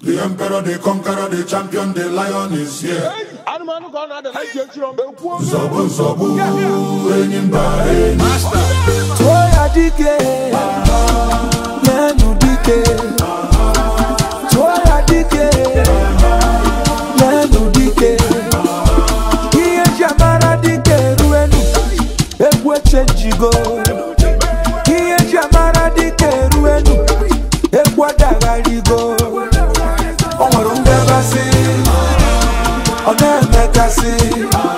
The emperor, the conqueror, the champion, the lion is here. Zobu, zobu, enyimba, enyimba. Toya dike, nenu dike. Toya dike, nenu dike. Iye jamara dike ruenu, ekwe chenjigo. Iye jamara dike ruenu, ekwa dagarigo. mẹ́mẹ́ka sí i.